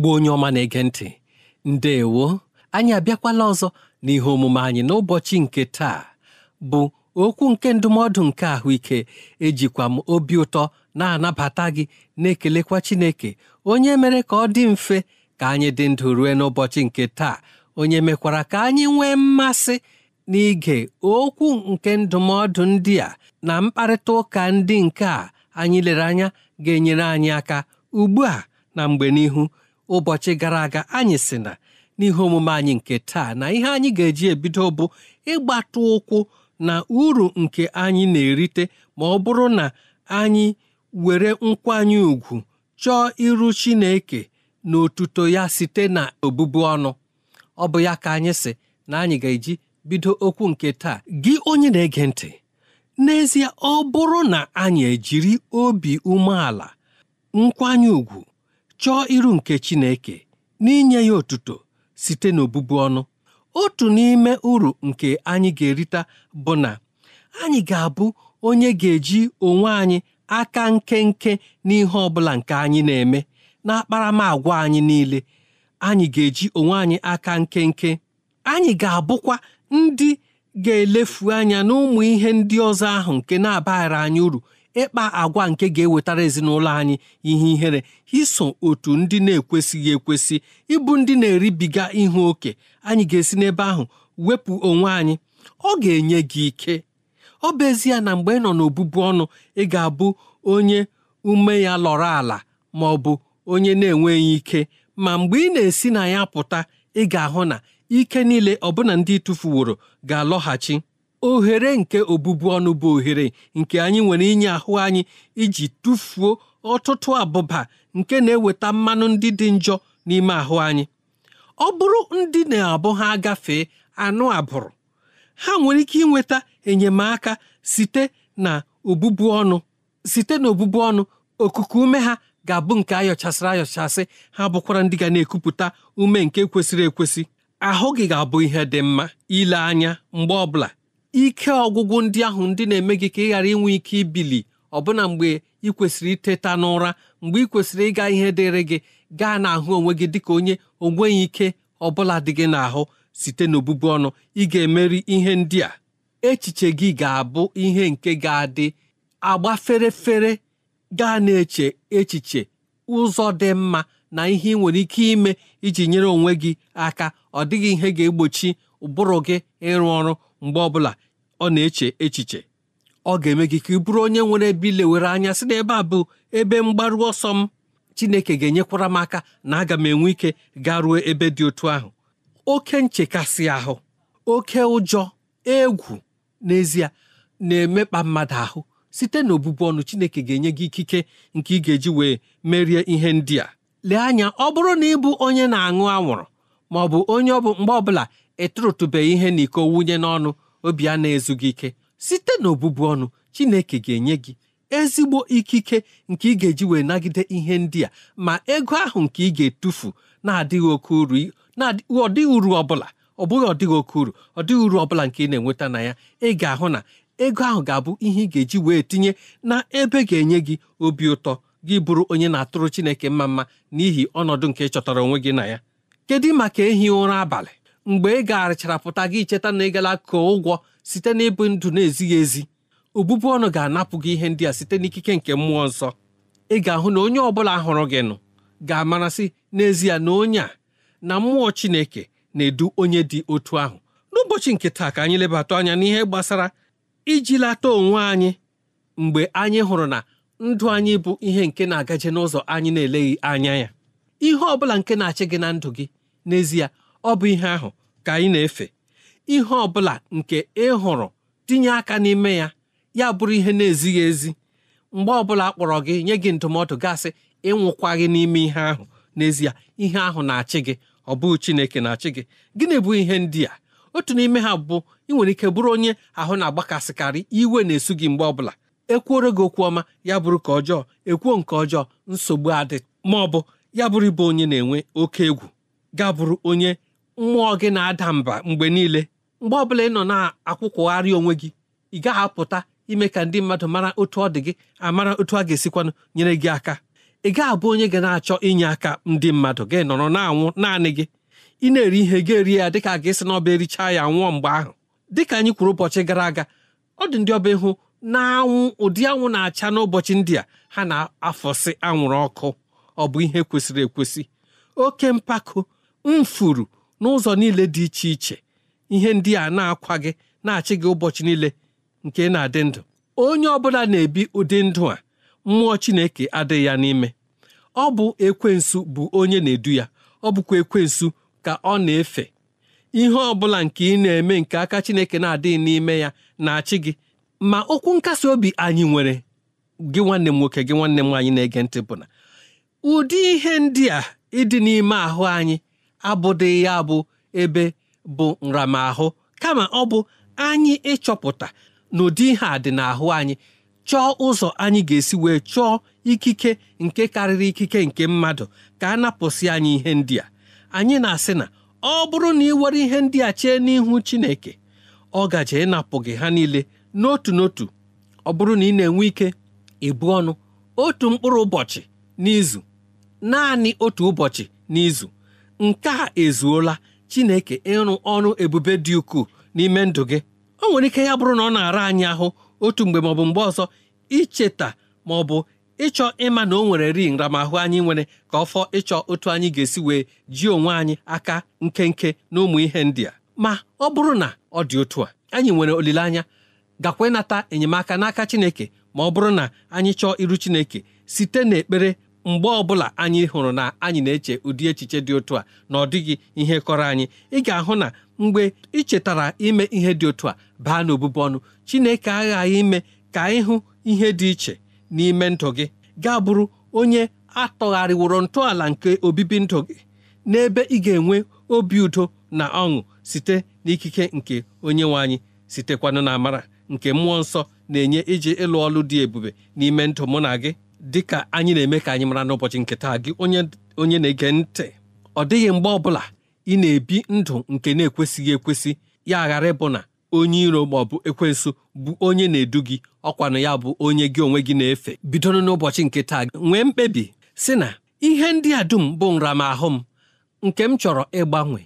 Igbo onye ọma na-ege ntị ndewo anyị abịakwala ọzọ n'ihe omume anyị n'ụbọchị nke taa bụ okwu nke ndụmọdụ nke ahụike ejikwa m obi ụtọ na-anabata gị na-ekelekwa Chineke onye mere ka ọ dị mfe ka anyị dị ndụ rue n'ụbọchị nke taa onye mekwara ka anyị nwee mmasị n'ige okwu nke ndụmọdụ ndị a na mkparịta ụka ndị nke a anyị lere anya ga-enyere anyị aka ugbu a na mgbe n'ihu ụbọchị gara aga anyị si na n'ihe omume anyị nke taa na ihe anyị ga-eji ebido bụ ịgbata ụkwụ na uru nke anyị na-erite ma ọ bụrụ na anyị were nkwanye ùgwù chọọ iru Chineke na otuto ya site na obubu ọnụ ọ bụ ya ka anyị si na anyị ga-eji bido okwu nke taa gị onye na-ege ntị n'ezie ọ bụrụ na anyị ejiri obi umeala nkwanye ùgwù chọọ iru nke Chineke n'inye ya otuto site n'obụbu ọnụ otu n'ime uru nke anyị ga-erita bụ na anyị ga-abụ onye ga-eji onwe anyị aka nkenke n'ihe ọ bụla nke anyị na-eme n'akparamagwa anyị niile anyị ga-eji onwe anyị aka nkenke anyị ga-abụkwa ndị ga-elefu anya n'ụmụ ihe ndị ọzọ ahụ nke na abaghara anyị uru ịkpa agwa nke ga-ewetara ezinụlọ anyị ihe ihere iso otu ndị na-ekwesịghị ekwesị ịbụ ndị na-eribiga ihu oke anyị ga-esi n'ebe ahụ wepụ onwe anyị ọ ga-enye gị ike ọ bụ ezie na mgbe ị nọ n'obụbụ ọnụ ị ga-abụ onye ume ya lọrọ ala ma ọ bụ onye na-enweghị ike ma mgbe ị na-esi na ya pụta ị ga-ahụ na ike niile ọbụna ndị tụfuworo ga-alọghachi ohere nke obụbu ọnụ bụ ohere nke anyị nwere inye ahụ anyị iji tụfuo ọtụtụ abụba nke na-eweta mmanụ ndị dị njọ n'ime ahụ anyị ọ bụrụ ndị na-abụ ha agafee anụ abụrụ ha nwere ike inweta enyemaka site na obụbụ ọnụ site na obụbu ọnụ okuku ume ha ga-abụ nke ayọchasịrị ayọchasị ha bụkwara ndị ga na-ekupụta ume nke kwesịrị ekwesị ahụ gị ga-abụ ihe dị mma ile anya mgbe ọbụla ike ọgwụgwụ ndị ahụ ndị na-eme gị ka ị ghara inwe ike ibili ọbụna mgbe ị kwesịrị iteta n'ụra mgbe ị kwesịrị ịga ihe dịrị gị gaa n'ahụ onwe gị dịka onye onweghị ike ọbụla dị gị n'ahụ site n'obụbu ọnụ ị ga-emeri ihe ndị a echiche gị ga-abụ ihe nke ga-adị agba ferefere gaa na-eche echiche ụzọ dị mma na ihe ị nwere ike ime iji nyere onwe gị aka ọ dịghị ihe ga-egbochi ụbụrụ gị ịrụ ọrụ mgbe ọbụla ọ na-eche echiche ọ ga-eme gị ka ị bụrụ onye nwere ebe were anya sị na ebe a bụ ebe mgbaru ọsọ m Chineke ga-enyekwara m aka na aga m enwe ike garuo ebe dị otu ahụ oke nchekasị ahụ oke ụjọ egwu n'ezie na-emekpa mmadụ ahụ site na ọnụ Chineke ga-enye gị ikike nke ị ga-eji wee merie ihe ndị a lee anya ọ bụrụ na ị bụ onye na-aṅụ anwụrụ ma ọ bụ onye ọ bụ mgbe ọbụla ịtụrụtụbeghị ihe na iko wunye n'ọnụ obi a na-ezughị ike site n'obubu ọnụ Chineke ga-enye gị ezigbo ikike nke ị ga-eji wee nagide ihe ndị a ma ego ahụ nke ị ga-etufu na-adịghị oke uru ọ uru ọbụla ọ bụghị ọdịghị oke uru ọ dịghị uru ọbụla nke ị na-enweta na ya ị ga-ahụ na ego ahụ ga-abụ ihe ị ga-eji wee tinye na ebe ga-enye gị obi ụtọ gị bụrụ onye na-atụrụ Chineke mma mma n'ihi ọnọdụ nke ị chọtara onwe gị na ya kedu maka ehi ụra abalị mgbe ị gagharịchara pụta gị cheta na ị gala koo ụgwọ site n'ịbụ ndụ na-ezighị ezi obụbụ ọnụ ga-anapụ gị ihe ndị a site n'ikike nke mmụọ nsọ ị ga-ahụ na onye ọbụla hụrụ gị nụ ga-amarasị n'ezie na onye a na mmụọ Chineke na-edu onye dị otu ahụ n'ụbọchị nke taa ka anyị lebata anya n'ihe gbasara iji lata onwe anyị mgbe anyị hụrụ na ndụ anyị bụ ihe nke na-agaje n'ụzọ anyị na-eleghị anya ya ihe ọ bụla nke na-achị gị na ndụ gị n'ezie ọ bụ ihe ahụ ka ị na-efe ihe ọ bụla nke ị hụrụ tinye aka n'ime ya ya bụrụ ihe na-ezighị ezi mgbe ọbụla a kpọrọ gị nye gị ndụmọdụ gasị ịnwụkwaghị n'ime ihe ahụ n'ezie ihe ahụ na-achị gị ọ bụghị Chineke na-achị gị gịnị bụ ihe ndị a otu n'ime ha bụ ị nwere ike bụrụ onye ahụ na-agbakasịkarị iwe na-esu gị mgbe ọbụla ekwuoro gị okwu ọma ya bụrụ ka ọjọọ ekwuo nke ọjọọ nsogbu adị ma ọ bụ ya bụrụ ịbụ onye na-enwe oke egwu ga bụrụ onye mmụọ gị na-ada mba mgbe niile mgbe ọ bụla ị nọ na-akwụkwụgharị onwe gị ị gaghị apụta ime ka ndị mmadụ mara otu ọ dị gị amara otu a ga-esikwanụ nyere gị aka ị gaghị abụ onye ga na-achọ inye aka ndị mmadụ gị nọrọ na-anwụ naanị gị ị na-eri ihe gị eri ya dịka a ga-esi na ọba erichaa ya nwụọ mgbe ahụ dị ka anyị kwuru ụbọchị gara aga ọ dị ndị ọba ịhụ na-anwụ ụdị anwụ na-acha n'ụbọchị ndị a ha na-afọsị anwụrụ ọkụ ọ bụ ihe kwesịrị ekwesị oke mpako mfuru n'ụzọ niile dị iche iche ihe ndị a na-akwa gị na-achị gị ụbọchị niile nke na-adị ndụ onye ọbụla na-ebi ụdị ndụ a mmụọ Chineke adịghị ya n'ime ọ bụ ekwensu bụ onye na-edu ya ọ bụkwa ekwensu ka ọ na-efe ihe ọ bụla nke ị na-eme nke aka Chineke na-adịghị n'ime ya na-achị gị ma okwu nkasi obi anyị nwere gị nwanne m nwoke gị nwanne m nwaanyị na-ege ntị bụ na ụdị ihe ndị a ịdị n'ime ahụ anyị abụdị ya bụ ebe bụ nramahụ kama ọ bụ anyị ịchọpụta n'ụdị ihe a dị n'ahụ anyị chọọ ụzọ anyị ga-esi wee chọọ ikike nke karịrị ikike nke mmadụ ka a napụsị anyị ihe ndị a anyị na-asị na ọ bụrụ na ị were ihe ndị a chee n'ihu Chineke ọ gaje ịnapụ gị ha niile n'otu n'otu ọ bụrụ na ị na-enwe ike ịbụ ọnụ otu mkpụrụ ụbọchị n'izu naanị otu ụbọchị n'izu nke a ezuola Chineke ịrụ ọrụ ebube dị ukwuu n'ime ndụ gị o nwere ike ya bụrụ na ọ na-ara anyị ahụ otu mgbe maọbụ mgbe ọzọ icheta ma ọ bụ ịchọ ịma na o nwere ri nramahụ anyị nwere ka ọ fọ ịchọ otu anyị ga-esi wee ji onwe anyị aka nkenke na ụmụ ihe ndị a ma ọ bụrụ na ọ dị otu a anyị nwere olileanya gakwa ịnata enyemaka n'aka Chineke ma ọ bụrụ na anyị chọọ iru Chineke site n'ekpere mgbe ọbụla anyị hụrụ na anyị na-eche ụdị echiche dị otu a na ọ dịghị ihe kọrọ anyị ị ga-ahụ na mgbe ị chetara ime ihe dị otu a baa n'obube ọnụ Chineke aghaghị ime ka ịhụ ihe dị iche n'ime ndụ gị gaa bụrụ onye atọgharịworo ntọala nke obibi ndụ gị n'ebe ị ga-enwe obi udo na ọṅụ site n'ikike nke onye nwe anyị sitekwanụ na amara nke mmụọ nsọ na-enye iji ịlụ ọlụ dị ebube n'ime ndụ mụ na gị dịka anyị na-eme ka anyị mara n'ụbọchị nke taa gị onye na-ege ntị ọ dịghị mgbe ọbụla ị na-ebi ndụ nke na-ekwesịghị ekwesị ya ghara ịbụ na onye iro ma ọ bụ ekwensu bụ onye na-edu gị ọkwanụ ya bụ onye gị onwe gị na-efe bidoro n'ụbọchị nke taa nwee mkpebi sị na ihe ndị a dum bụ nramahụ m nke m chọrọ ịgbanwe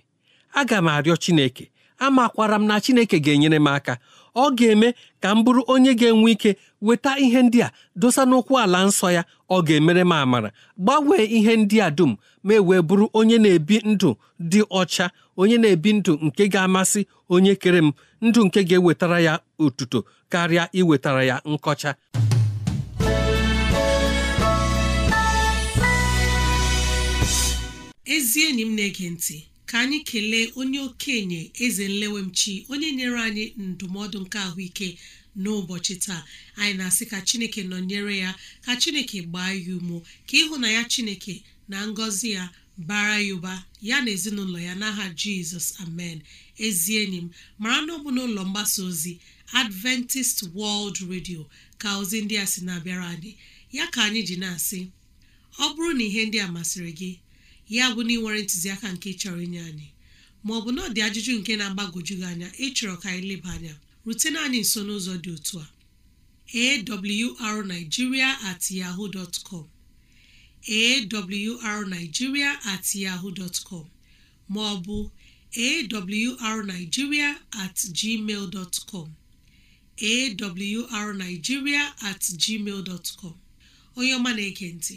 aga m arịọ Chineke amakwara m na Chineke ga-enyere m aka ọ ga-eme ka m bụrụ onye ga-enwe ike weta ihe ndị a dosa n'ụkwụ ala nsọ ya ọ ga-emere m amara gbanwee ihe ndị a dum ma e wee bụrụ onye na-ebi ndụ dị ọcha onye na-ebi ndụ nke ga-amasị onye kere m ndụ nke ga-ewetara ya otuto karịa iwetara ya nkọcha ezi enyi m na-ege ntị ka anyị kelee onye okenye eze nlewemchi onye nyere anyị ndụmọdụ nke ahụike n'ụbọchị taa anyị na-asị ka chineke nọnyere ya ka chineke gbaa ya umo ka ịhụnanya chineke na ngọzi ya bara ya ụba ya na ezinụlọ ya n'aha jizọs amen ezi enyi m mara na ọ n'ụlọ mgbasa ozi adventist world radio ka ozi ndị a sị na-abịara anyị ya ka anyị ji na-asị ọ bụrụ na ihe ndị a masịrị gị ya bụ na ị nwere ntụziaka nke chọrọ inye anyị ma ọ bụ na ọ dị ajụjụ nke na-agbagoju gị anya ịchọrọ ka anyị leba anya rutena anyị nso n'ụzọ dị otu a arigiria at at com ma ọ bụ at gmail com at gmail dotcom onye ọma na-ege ntị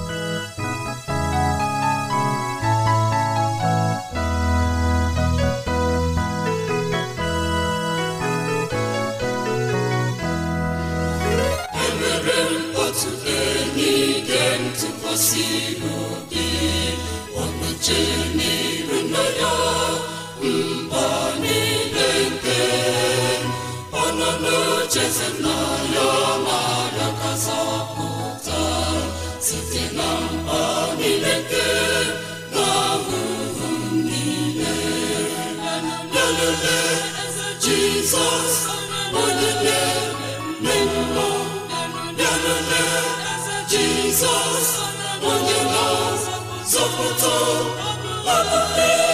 na Jesus. onye na-azọpụta ọbụla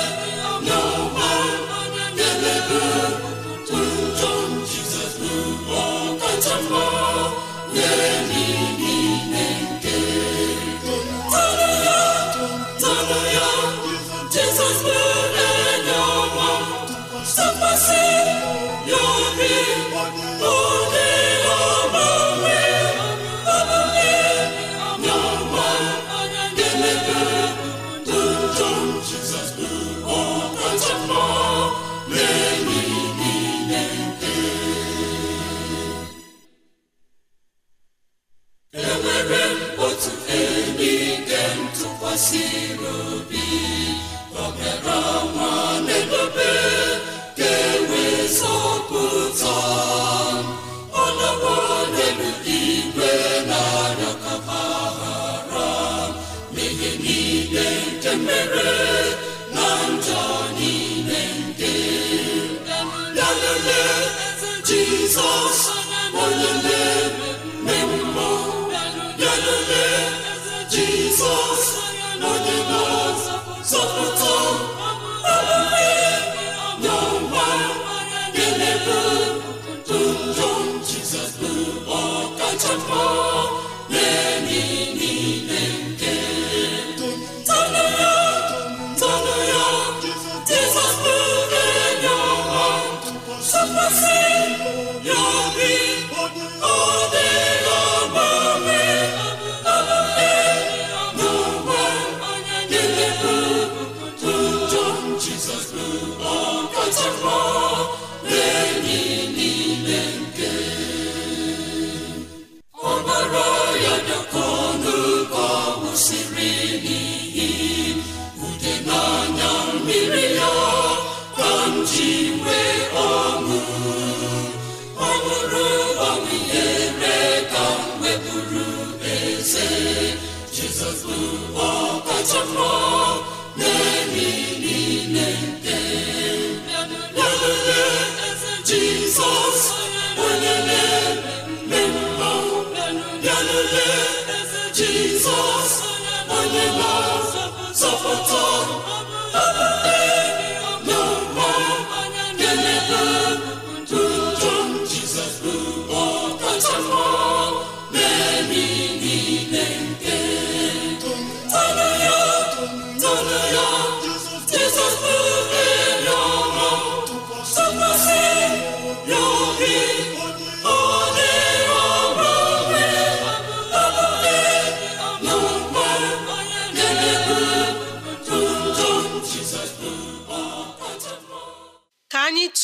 Jizọs bụ oh,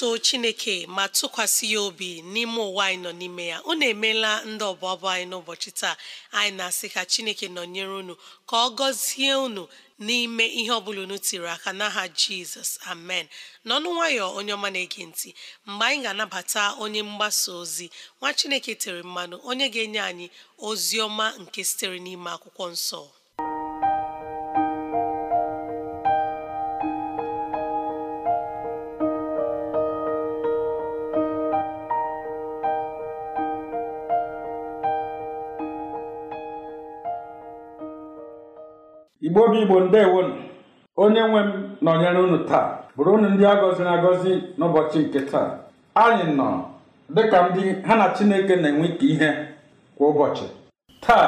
so chineke ma tụkwasị ya obi n'ime ụwa anyị nọ n'ime ya unu emeela ndị ọbụbụ anyị n'ụbọchị taa anyị na-asị ka chineke nọnyere unu ka ọ gọzie unu n'ime ihe ọbụla unu tiri aka n'aha jizọs amen n'ọnụ nwayọ onye ọma na-ege ntị mgbe anyị ga-anabata onye mgbasa ozi nwa chineke tere mmanụ onye ga-enye anyị ozi ọma nke sitere n'ime akwụkwọ nsọ obi igbo ndewonu onye nwe m nọnyere unu taa bụrụ unu ndị a gọziri agọzi n'ụbọchị nke taa anyị nọ dịka ndị ha na chineke na-enwe ike ihe kwa ụbọchị taa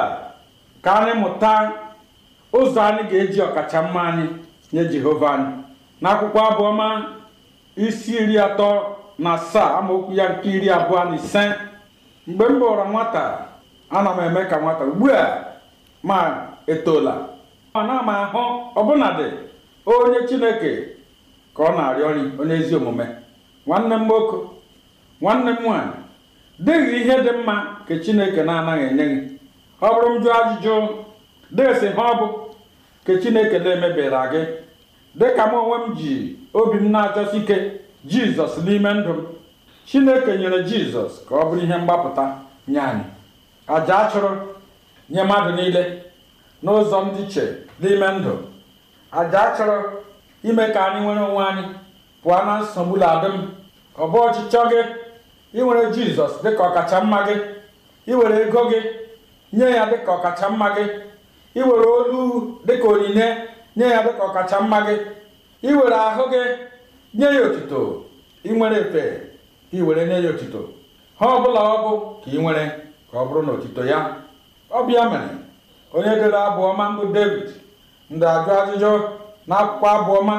ka anyị mụta ụzọ anyị ga-eji ọkacha mma anyị nye jehova anyị n'akwụkwọ abụọma isi iri atọ na asaa amaokwu ya nke iri abụọ na ise mgbe m bụrụ nwata ana m eme ka nwata ugbu a ma etola ana m ahụ ọbụnadị onye chineke ka ọ na-arịọ nri onye ezi omume nwanne m nwoke nwanne m nwaanyị dịghị ihe dị mma ka chineke na-anaghị enye gị ọ bụrụ m jụọ ajụjụ desi ha ọ bụ ka chineke na emebira gị dịka m onwe m ji obi m na-achọsi ike jizọs n'ime ndụ m chineke nyere jizọs ka ọ bụrụ ihe mgbapụta nye anyị aja a chụrụ nye mmadụ niile n'ụzọ ndị che n'ime ndụ aja chọrọ ime ka anyị nwere onwe anyị pụọ na nsogbu ladịm ọ bụ ọchịchọ gị iwere jizọs dịka ọkacha mma gị iwere ego gị nye ya dịka ọkacha mma gị iwere olu dịka onyinye nye ya dịka ọkacha mma gị iwere ahụ gị nye ya otuto inwere efe ka iwere nye ya otuto ha ọbụla ọ bụ ka ị nwere ka ọ bụrụ na otuto ya ọ bịa mere onye dere abụọma mbụ david da-ajụ ajụjụ na akwụkwọ abụọma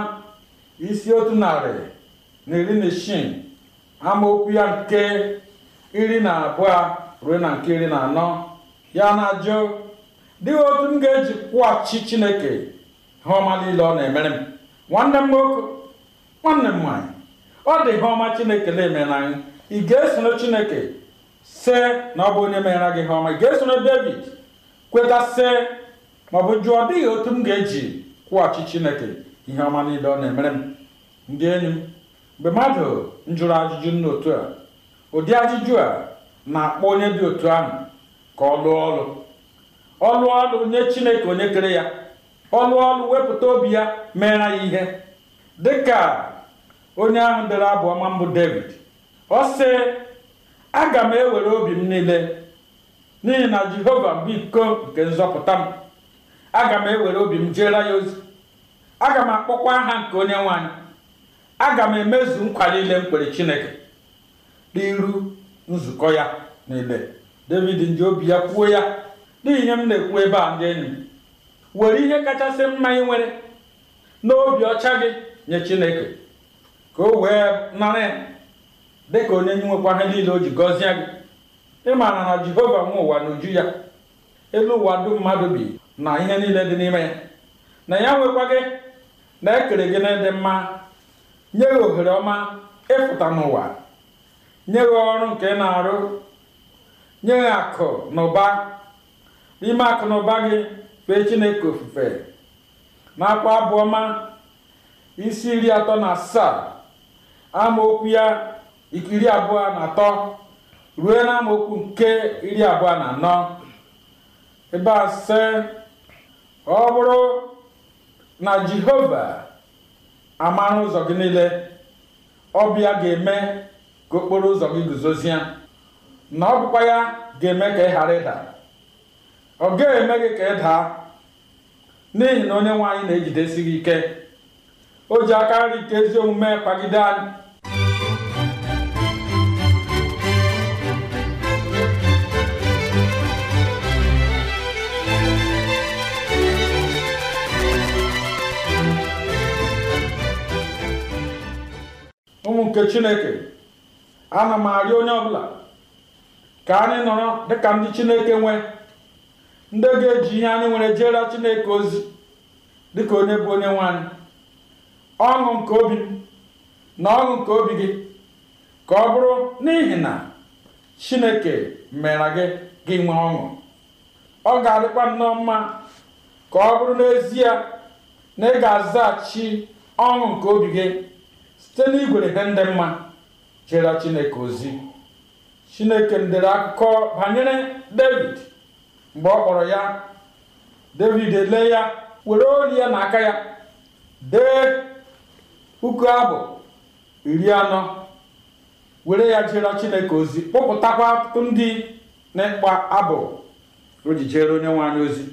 isi otu narị na iri na isii amaokwu ya nke iri na abụọ ruo na nke iri na anọ ya na-ajụ dịghị otu m ga-eji kwụghachi chineke ha ọma niile ọ na-emere m nwanne m nwoke nwanne m nwaanyị ọ dị ihe ọma chineke na-eme n'anyị ị ga-esoro chineke se na ọ bụ onye meere gị ihe ọma ị ga-esoro david kwetasị maọbụ jụọ ọ dịghị otu m ga-eji kwụghachi chineke ihe ọma niile ọ na-emere m ndị enyi m mgbe mmadụ njụrụ ajụjụ nna otu a ụdị ajụjụ a na-akpọ onye dị otu ahụ ka ọ lụọ ọlụ ọ lụọ ọlụ nye chineke onye kere ya ọ lụọ ọlụ wepụta obi ya meere ya ihe dịka onye ahụ dere abụ ọma mbụ david ọ sị aga m ewere obi m niile n'ihi na jehova bụ iko nke nzọpụta m aga m ewere obi m jeere ya ozi aga m akpọkwa aha nke onye nwanyị aga m emezu nkwa niile m kwere chineke n'iru nzukọ ya niile david nji obi ya kwuo ya n'ihi m na-ekwu ebe a ndị enyi were ihe kachasị mma ị nwere n'obi ọcha gị nye chineke ka o wee nara dị ka onye nye nwekwa niile o ji gọzie gị ịmana na jehova nwe ụwa n'uju ya elu ụwa dum mmadụ bi na ihe niile dị n'ime ya na ya nwekwa gị na ekere gị na mma nye gị ohere ọma ịfụta n'ụwa nye gị ọrụ nke na-arụ nye gị akụ na ụba n'ime akụ na ụba gị fee chineke ofufe na-akwa abụ ọma isi iri atọ na asaa amaokwu ya iri abụọ na atọ ruo na amaokwu nke iri abụọ na anọ ebe a sị ọ bụrụ na jehova amara ụzọ gị niile ọbịa ga-eme ka okporo ụzọ gị guzozie na ọ bụkwa ya ga-eme ka ị ghara ịda ọ gaghị eme gị ka ị daa n'ihi na onye nwe na-ejidesi gị ike o ji aka nri nke ezi omume kpagide anyị nke chineke ana m arịọ onye ọbụla ka anyị nọrọ dịka ndị chineke nwee ndị ga-eji ihe anyị nwere jela chineke ozi dịka onye bụ onye nwanyị ọṅụ nke obi na ọṅụ nke obi gị ka ọ bụrụ n'ihi na chineke mere gị gị nwee ọṅụ ọ ga-adịkwa nnọọ mma ka ọ bụrụ n'ezie na ị ga-azaghachi ọṅụ nke obi gị site igwere ihe ndị mma jere chineke ozi chineke ndere akụkọ banyere david mgbe ọ kpọrọ ya david ele ya were ori ya aka ya dee puku abụ iri anọ were ya jere chineke ozi kpụpụtakwa ọtụtụ ndị na-ekpa abụ o ji onye nwe ozi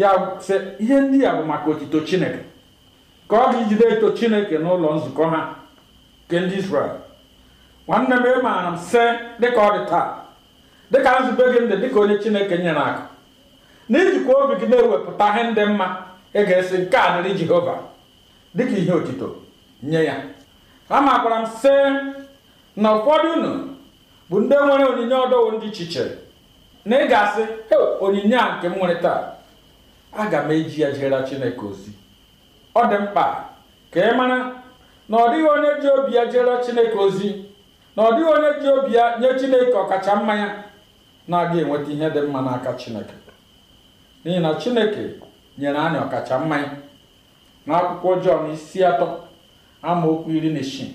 ya sị ihe ndị ya bụ maka otito chineke ka ọ ga-ijide eto chineke n'ụlọ nzukọ ha nke ndị israel nwanne m ị maara m sị dịka ọ dị taa dịka nzube gị ndị dịka onye chineke nyere aka n'ijikwa obi gị na-ewepụta ihe ndị mma ị ga-esi nke a dịrị jehova dịka ihe otito nye ya amakwara m sị na ụfọdụ unu bụ ndị nwere onyinye ọdọwo ndị chiche na ị ga-asị onyinye a nke m nwere taa aga m eji ya jere chineke ozi oh, ọ dị mkpa ka ị mara na ọ dịghị onye ji obi ya jere chineke ozi na ọ dịghị onye ji obi ya nye chineke ọkacha mmanya na-aga enweta ihe dị mma n'aka chineke n'ihi na chineke nyere anyị ọkacha mmanya ya n'akwụkwọ Jọn isi atọ amaokwu iri na isii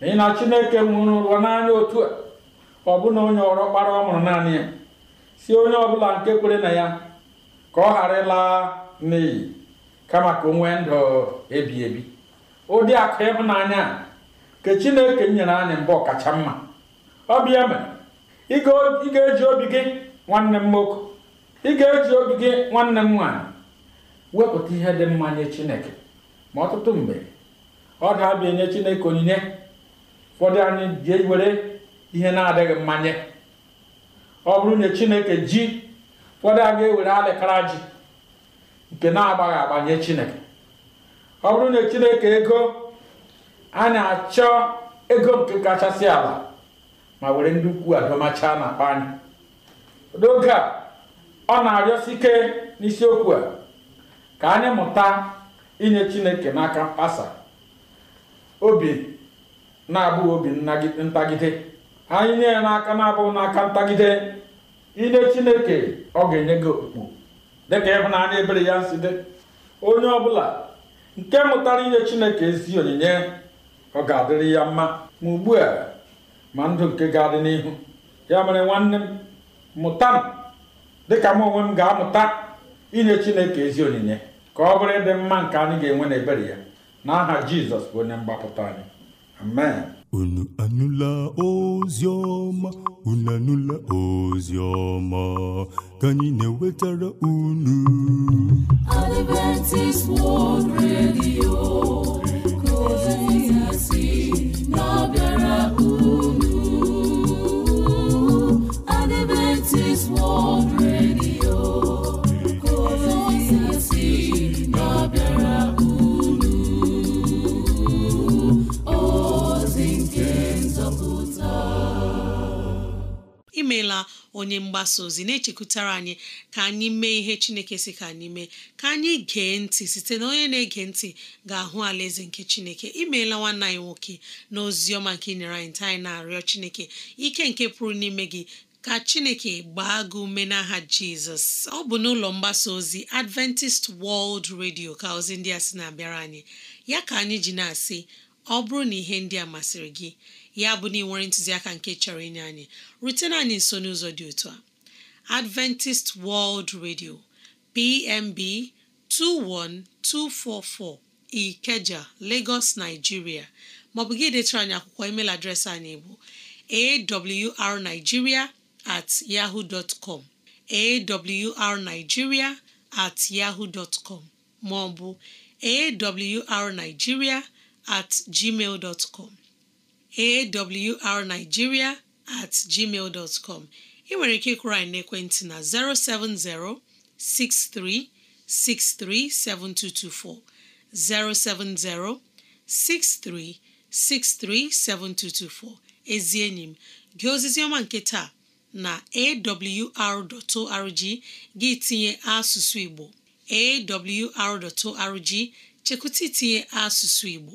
n'ihi na chineke nwụrụ ụlọ n'anya otu a ọ bụ na onye ọrọkpara ọ mụrụ naanị ya si onye ọbụla nke kwere na ya ka ọ ghara ịlaa n'iyi kama ka onwe nwee ndụ ebi ebi ụdị akụ ịhụnanya a nke Chineke nyere anyị mbụ ọkacha mma ọ bịa mere ị ga-eji obi gị nwanne m nwoke ị eji obi gị nwanne m nwaanyị wepụta ihe dị mma nye Chineke ma ọtụtụ mgbe ọ ga-abịa nye Chineke onyinye ụfọdụ anyị ji were ihe na-adịghị mmanye ọ bụrụ na Chineke ji ụfọdụ a ga-ewere alịkara ji nke na-agbaghị agbanye chineke ọ bụrụ na chineke ego a na-achọ ego nke kachasị ala ma were ndị ukwu adọmacha na-akpa anyị n'oge a ọ na-arịọsi ike n'isiokwu a ka anyị mụta inye chineke n'aka mkpasa obi na-abụghị obi ntagide anyị nye ya n'aka na-abụghị n'aka ntagide inye chineke ọ ga-enye gị okpukpu ka na anyị ebere ya si dị onye ọbụla nke mụtara inye chineke ezi onyinye ọ ga-adịrị ya mma ma ugbu a ma ndụ nke ga-adị n'ihu ya mere nwanne m mụta m dịka m onwe m ga-amụta inye chineke ezi onyinye ka ọ bụrụ ịdị mma nke anyị ga-enwe na-ebere ya aha jizọs bụ onye mgbapụta anyị amen unu anụla ozi ọma unu anụla ozi ọma ka anyị na-ewetara unu Adventist World Radio onye mgbasa ozi na-echekwutara anyị ka anyị mee ihe chineke si ka anyị mee ka anyị gee ntị site na onye na-ege ntị ga-ahụ alaeze nke chineke imeela nwanne anyị nwoke na oziọma ọma nke nyere anyị ntị anyị na-arịọ chineke ike nke pụrụ n'ime gị ka chineke gbaa gị ume n'aha jizọs ọ bụ n'ụlọ mgbasa ozi adventist wọld redio ka ozi ndị a si na-abịara anyị ya ka anyị ji na-asị ọ bụrụ na ihe ndị a masịrị gị ya bụ na ịnwere ntụziaka nke chọrọ inye anyị rutena anyị nso n'ụzọ dị otu a Adventist World Radio PMB 21244 Ikeja Lagos Nigeria maọbụ gị detara anyị akwụkwọ email adreesị anyị bụ awrnigeria at yahoo dot com at yahoo dot maọbụ awrnigeria at gmail dot awrnigeria at gmail dot com ị nwere ike ịkwụrụ anyị n'ekwentị na 07063637224 07063637224 ezi enyi m gị ozizi ọma nke taa na awr.org gị tinye asụsụ Igbo awr.org chekwụta itinye asụsụ Igbo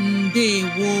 ndewo